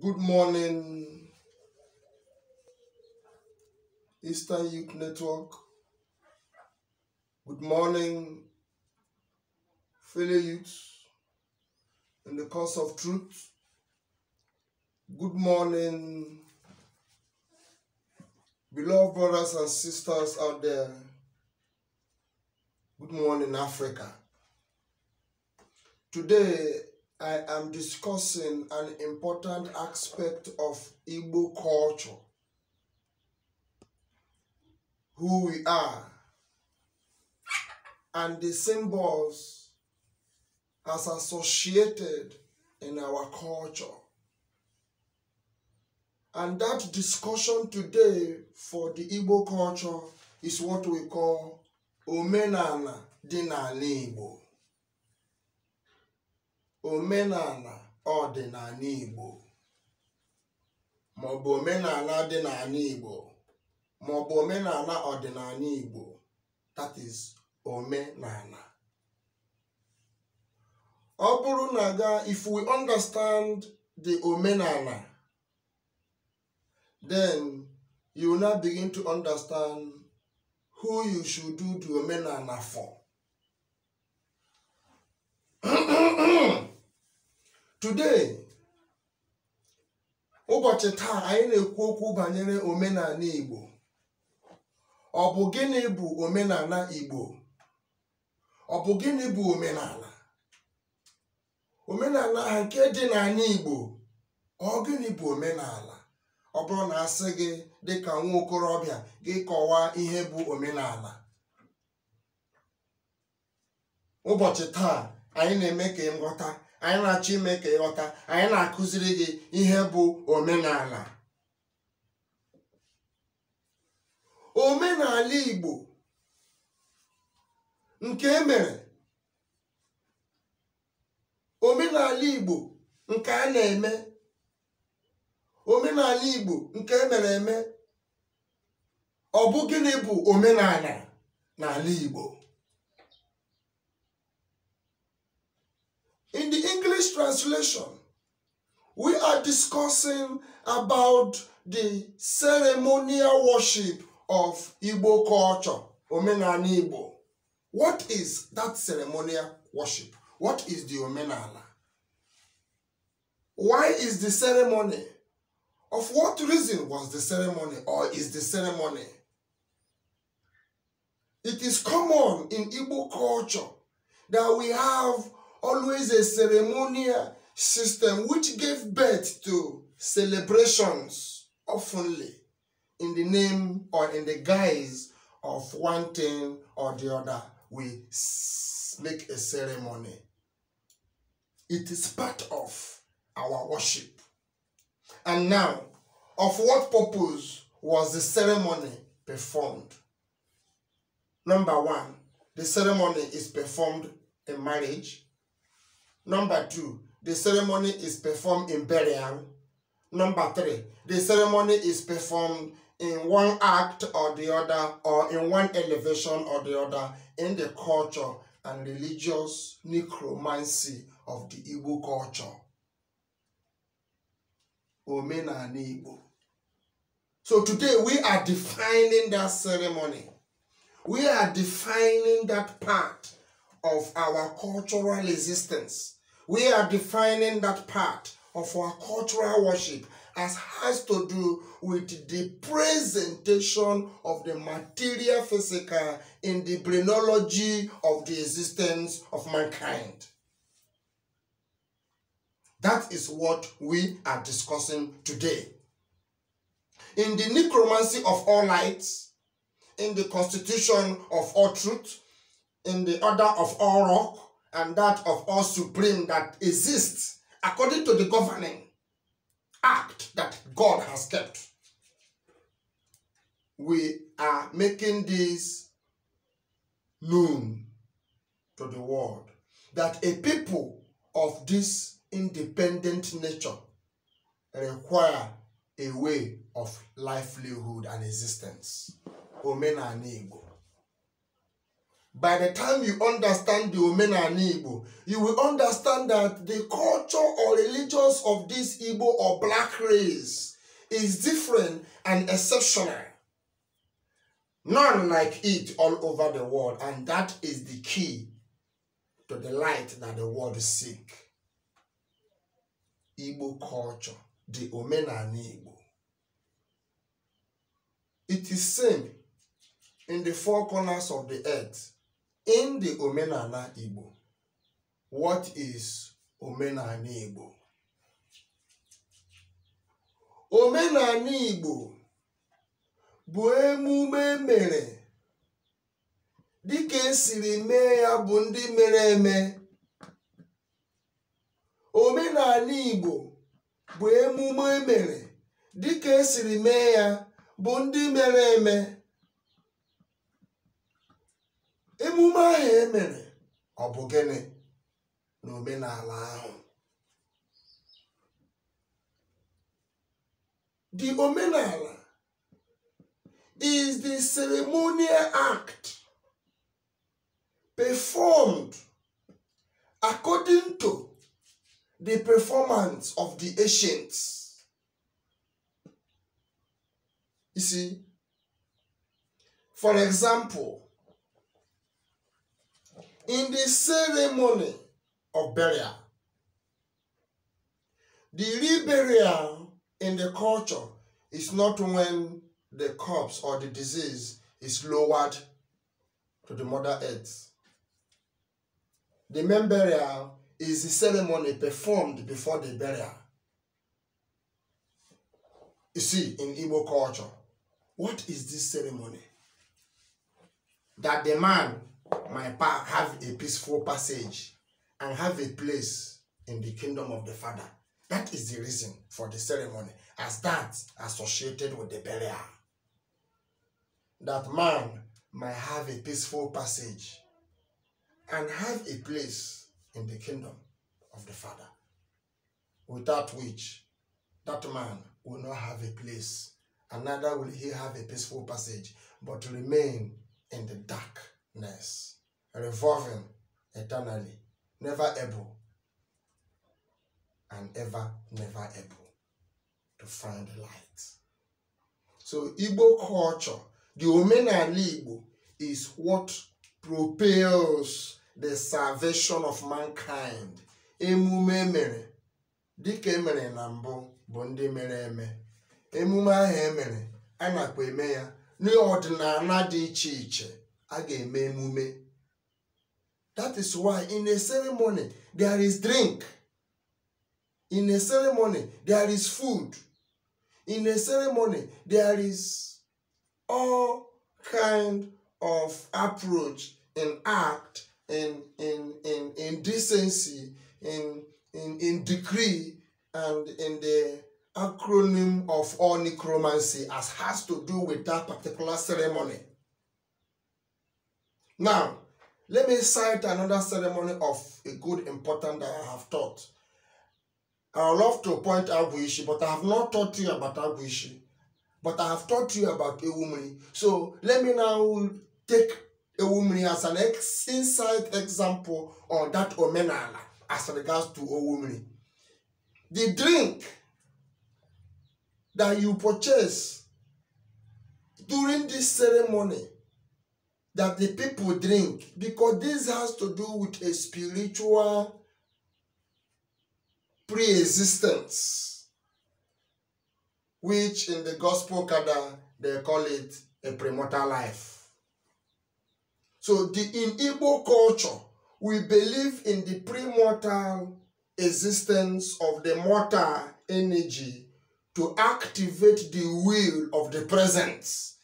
Good morning, Eastern Youth Network. Good morning, fellow youths in the cause of truth. Good morning, beloved brothers and sisters out there. Good morning, Africa. Today, I am discussing an important aspect of Igbo culture who we are and the symbols as associated in our culture. And that discussion today for the Igbo culture is what we call Omenana Dinala Igbo omenala ọdịnala Igbo maọbụ omenala ọdịnala Igbo maọbụ omenala ọdịnala Igbo that is omenala ọ bụrụ na ga if we understand the omenala then you will now begin to understand who you should do the omenala for today ụbọchị taa anyị na-ekwu okwu banyere omenala Igbo ọ bụ gịnị bụ omenala Igbo ọ bụ gịnị bụ omenala omenala ha nke dị anyị Igbo ọ gịnị bụ omenala ọ bụrụ na asị gị dị ka nwa okorobịa gị kọwaa ihe bụ omenala ụbọchị taa anyị na-eme ka ghọta. anyị na-achọ ime ka ịghọta anyị na-akụziri gị ihe bụ omenala omenala Igbo nke emere omenala Igbo nke a na-eme omenala Igbo nke emere eme ọ bụ gịnị bụ omenala n'ala Igbo In the English translation, we are discussing about the ceremonial worship of Igbo culture, Omenana Igbo. What is that ceremonial worship? What is the Omenana? Why is the ceremony? Of what reason was the ceremony or is the ceremony? It is common in Igbo culture that we have always a ceremonial system which gave birth to celebrations oftenly in the name or in the guise of one thing or the other. We make a ceremony. It is part of our worship. And now, of what purpose was the ceremony performed? Number one, the ceremony is performed in marriage. Number two, the ceremony is performed in burial. Number three, the ceremony is performed in one act or the other, or in one elevation or the other, in the culture and religious necromancy of the Igbo culture. Igbo. So today we are defining that ceremony. We are defining that part of our cultural existence. we are defining that part of our cultural worship as has to do with the presentation of the material physical in the phrenology of the existence of mankind. That is what we are discussing today. In the necromancy of all lights, in the constitution of all truth, in the order of all rock, and that of all supreme that exists according to the governing act that God has kept. We are making this known to the world that a people of this independent nature require a way of livelihood and existence. and Igbo by the time you understand the and Igbo, you will understand that the culture or religions of this Igbo or black race is different and exceptional. None like it all over the world, and that is the key to the light that the world seek. Igbo culture, the and Igbo. It is same in the four corners of the earth in the omenala Igbo what is omenala Igbo omenala Igbo bụ emume mere dịka esiri mee ya bụ ndị mere eme omenala Igbo bụ emume mere dịka esiri mee ya bụ ndị mere eme emume ahụ e mere ọ bụ gịnị na omenala ahụ the omenala is the ceremonial act performed according to the performance of the ancients. You see, for example, in the ceremony of burial. The real burial in the culture is not when the corpse or the disease is lowered to the mother earth. The main burial is the ceremony performed before the burial. You see, in Igbo culture, what is this ceremony? That the man my path have a peaceful passage and have a place in the kingdom of the Father. That is the reason for the ceremony, as that associated with the burial. That man might have a peaceful passage and have a place in the kingdom of the Father, without which that man will not have a place, and neither will he have a peaceful passage, but remain in the dark ness, revolving eternally, never able and ever, never able to find the light. So Igbo culture, the Omenala Igbo, is what propels the salvation of mankind. Emume mere, dịka emere na mbụ bụ ndị mere eme. Emume ahụ emere, a nakwa eme ya n'ọdịnala dị iche iche. a ga-eme emume that is why in a ceremony there is drink in a ceremony there is food in a ceremony there is all kind of approach in act in in in in decency in in in degree and in the acronym of all necromancy as has to do with that particular ceremony Now, let me cite another ceremony of a good important that I have taught. I love to point out Buishi, but I have not taught you about Abuishi. But I have taught you about Ewumri. So let me now take Ewumri as an ex inside example on that Omenala as regards to Ewumri. The drink that you purchase during this ceremony that the people drink because this has to do with a spiritual pre-existence which in the gospel kada they call it a premortal life so the in igbo culture we believe in the premortal existence of the mortal energy to activate the will of the presence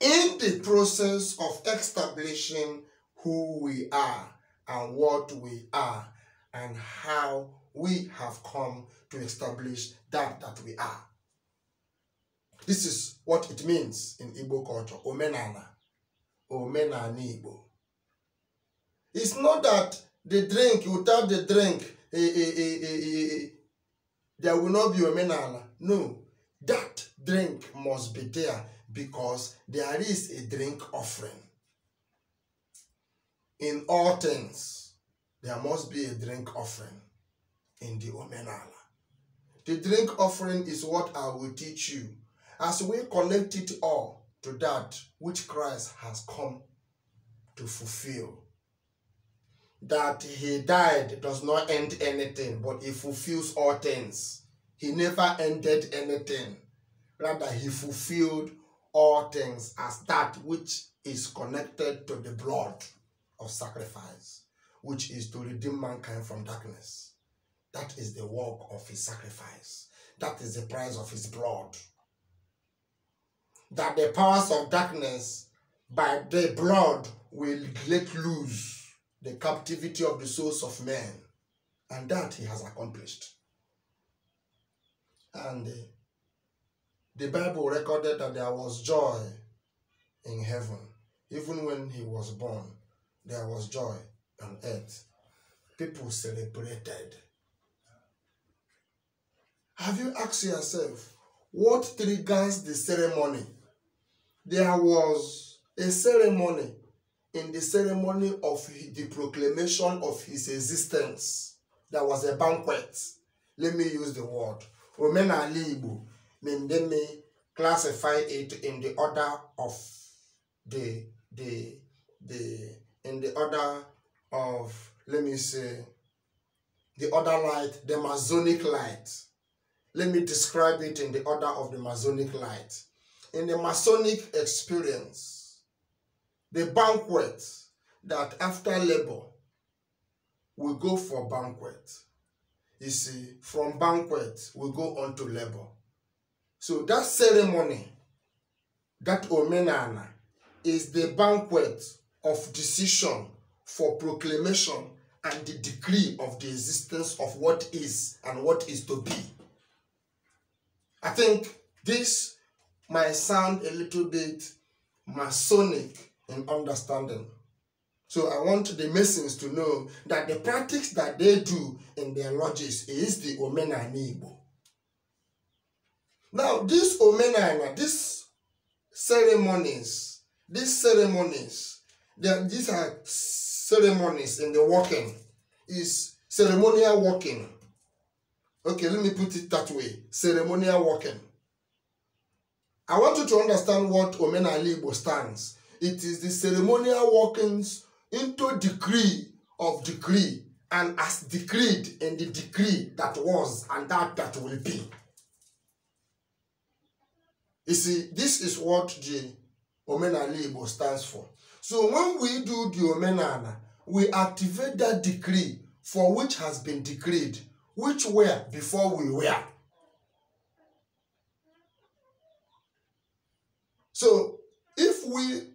in the process of establishing who we are and what we are and how we have come to establish that that we are. This is what it means in Igbo culture, omenana, omenana Igbo. It's not that the drink, without the drink, eh, eh, eh, there will not be omenana. No, that drink must be there because there is a drink offering. In all things, there must be a drink offering in the Omenala. The drink offering is what I will teach you as we collect it all to that which Christ has come to fulfill. That he died does not end anything, but he fulfills all things. He never ended anything. Rather, he fulfilled all things as that which is connected to the blood of sacrifice, which is to redeem mankind from darkness. That is the work of his sacrifice. That is the price of his blood. That the powers of darkness by the blood will let loose the captivity of the souls of men. And that he has accomplished. And uh, the Bible recorded that there was joy in heaven. Even when he was born, there was joy on earth. People celebrated. Have you asked yourself, what triggers the ceremony? There was a ceremony in the ceremony of the proclamation of his existence. There was a banquet. Let me use the word. Omenala Igbo mean they may classify it in the order of the the the in the order of let me say the other light the masonic light let me describe it in the order of the masonic light in the masonic experience the banquet that after labor we go for banquet you see from banquet we go on to labor so that ceremony, that omenana, is the banquet of decision for proclamation and the decree of the existence of what is and what is to be. I think this might sound a little bit Masonic in understanding. So I want the Masons to know that the practice that they do in their lodges is the Omena Igbo. Now, this omenana, this ceremonies, these ceremonies, are, these are ceremonies in the walking, is ceremonial walking. Okay, let me put it that way, ceremonial walking. I want you to understand what Omenali Igbo stands. It is the ceremonial walkings into decree of decree and as decreed in the decree that was and that that will be. You see, this is what the Omenala Igbo stands for. So when we do the Omenala, we activate that decree for which has been decreed, which were before we were. So if we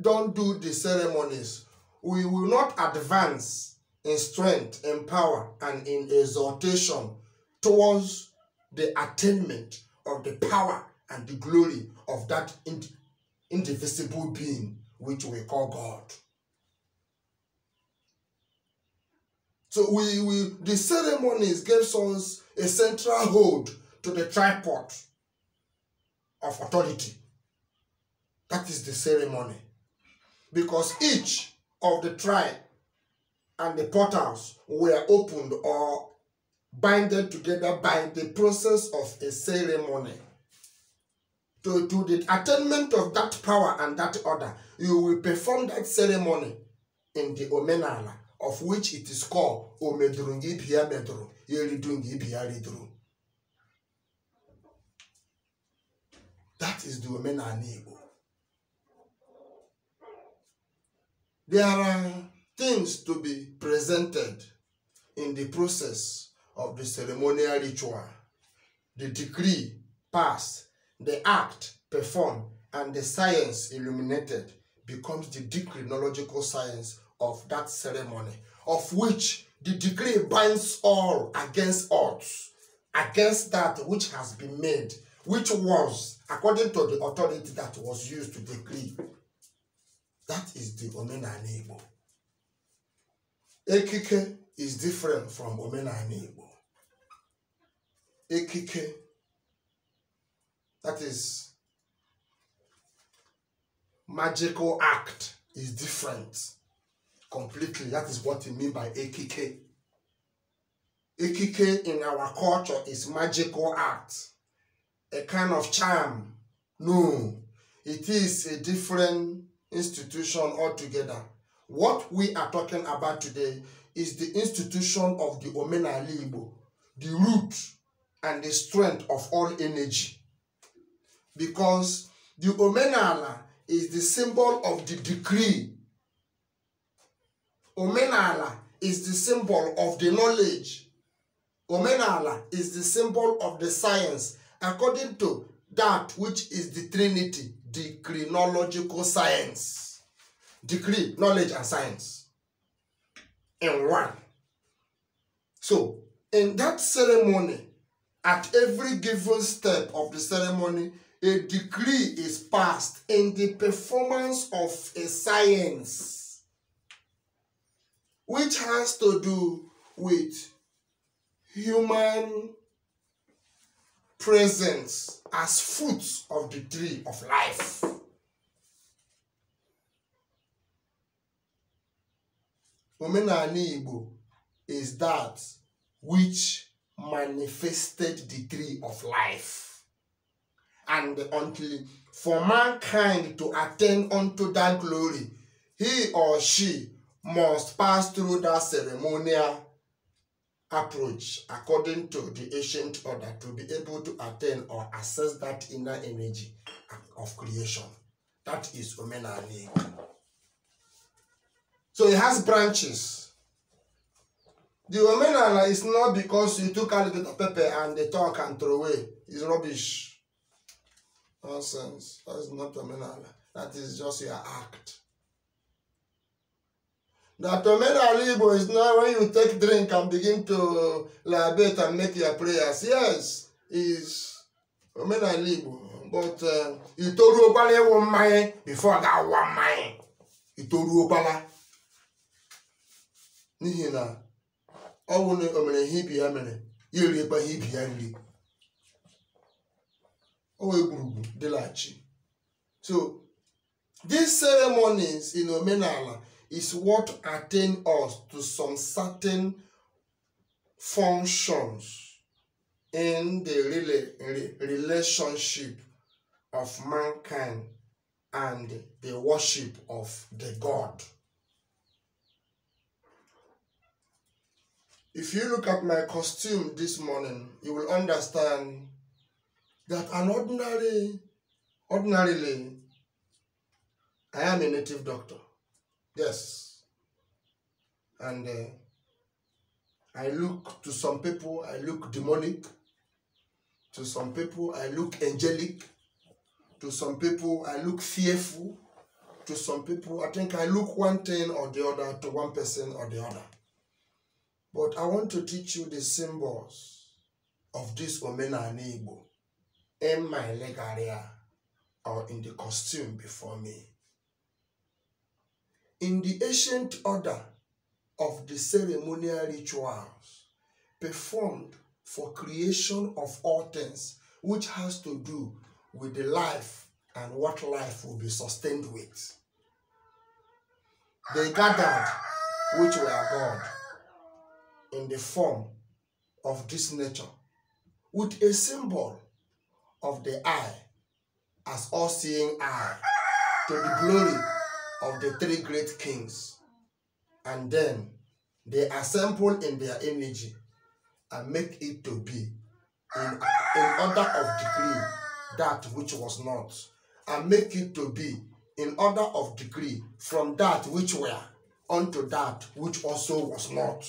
don't do the ceremonies, we will not advance in strength, in power, and in exhortation towards the attainment of the power and the glory of that indivisible being which we call God. So we, we the ceremonies gave us a central hold to the tripod of authority. That is the ceremony. Because each of the tribe and the portals were opened or binded together by the process of a ceremony to, to the attainment of that power and that order, you will perform that ceremony in the omenala, of which it is called omedrungi pia medru, yeridungi ridru. That is the omenala Igbo. There are things to be presented in the process of the ceremonial ritual. The decree passed the act performed, and the science illuminated becomes the decrinological science of that ceremony, of which the decree binds all against odds, against that which has been made, which was according to the authority that was used to decree. That is the Omenana Igbo. Ekike is different from Omenana Igbo. Ekike That is magical act is different completely. That is what we mean by AKK. Ekike in our culture is magical act, a kind of charm. No, it is a different institution altogether. What we are talking about today is the institution of the Omenala Igbo, the root and the strength of all energy because the omenala is the symbol of the decree. Omenala is the symbol of the knowledge. Omenala is the symbol of the science according to that which is the Trinity, the chronological science. decree, knowledge, and science in one. So, in that ceremony, at every given step of the ceremony, a degree is passed in the performance of a science which has to do with human presence as fruits of the tree of life. Omenala Igbo is that which manifested the tree of life. and until for mankind to attain unto that glory, he or she must pass through that ceremonial approach according to the ancient order to be able to attain or access that inner energy of creation. That is Omenani. So it has branches. The Omenala is not because you took a little pepper and they talk and throw away. It's rubbish. Nonsense. That is not terminal. That is just your act. The terminal Igbo is not when you take drink and begin to libate and make your prayers. Yes, is terminal Igbo. But uh, itoru ọbala one mmanya before that one mmanya itoru ọbala n'ihi na ọ bụ na o mere ihe ibi ya mere ya eriekwa ihe ibi o so these ceremonies in omenala is what attain us to some certain functions in the relationship of mankind and the worship of the God. If you look at my costume this morning, you will understand that an ordinary, ordinarily, I am a native doctor. Yes. And uh, I look to some people, I look demonic. To some people, I look angelic. To some people, I look fearful. To some people, I think I look one thing or the other to one person or the other. But I want to teach you the symbols of this Omena and Igbo. in my leg area or in the costume before me. In the ancient order of the ceremonial rituals performed for creation of all things, which has to do with the life and what life will be sustained with. They gathered, which were God, in the form of this nature, with a symbol of the eye as all seeing eye to the glory of the three great kings. And then they assemble in their energy and make it to be in, in order of degree that which was not, and make it to be in order of degree from that which were unto that which also was not,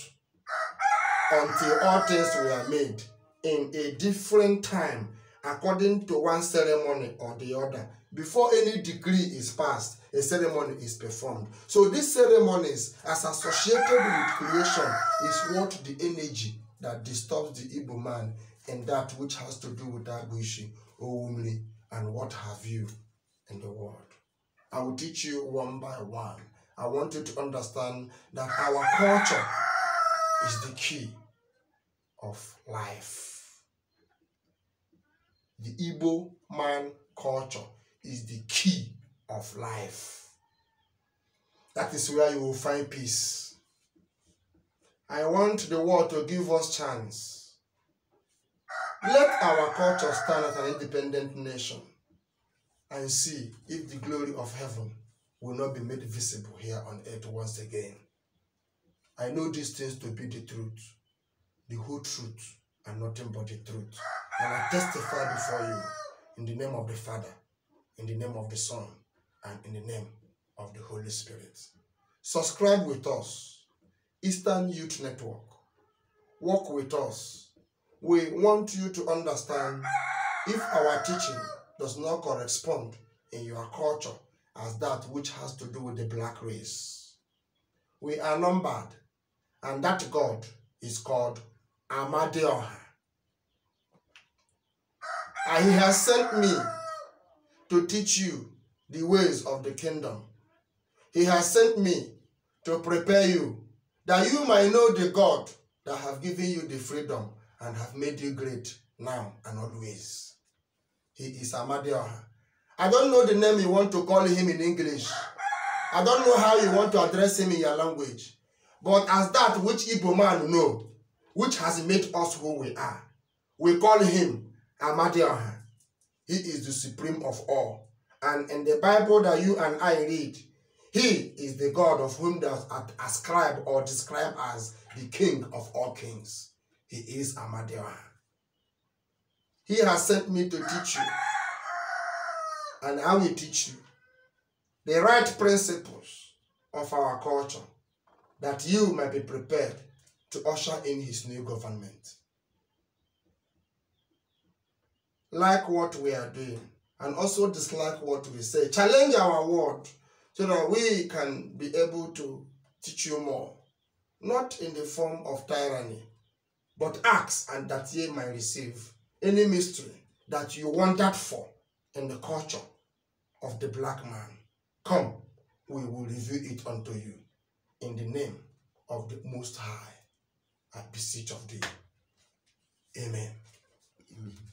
until all things were made in a different time according to one ceremony or the other. Before any decree is passed, a ceremony is performed. So these ceremonies, as associated with creation, is what the energy that disturbs the Igbo man and that which has to do with Agwishi, Oumli, and what have you in the world. I will teach you one by one. I want you to understand that our culture is the key of life. The Igbo man culture is the key of life. That is where you will find peace. I want the world to give us chance. Let our culture stand as an independent nation and see if the glory of heaven will not be made visible here on earth once again. I know these things to be the truth, the whole truth, and nothing but the truth. And I testify before you in the name of the Father, in the name of the Son, and in the name of the Holy Spirit. Subscribe with us, Eastern Youth Network. Work with us. We want you to understand if our teaching does not correspond in your culture as that which has to do with the black race. We are numbered, and that God is called Amadeon. And he has sent me to teach you the ways of the kingdom. He has sent me to prepare you that you might know the God that have given you the freedom and have made you great now and always. He is Amadioha. I don't know the name you want to call him in English. I don't know how you want to address him in your language. But as that which Igbo man know, which has made us who we are, we call him Amadioha. He is the supreme of all. And in the Bible that you and I read, he is the God of whom does ascribe or describe as the King of all kings. He is Amadioha. He has sent me to teach you. And I will teach you the right principles of our culture that you might be prepared to usher in his new government. like what we are doing and also dislike what we say. Challenge our word so that we can be able to teach you more. Not in the form of tyranny, but ask and that ye may receive any mystery that you wanted for in the culture of the black man. Come, we will reveal it unto you in the name of the Most High. I beseech of thee. Amen. Amen.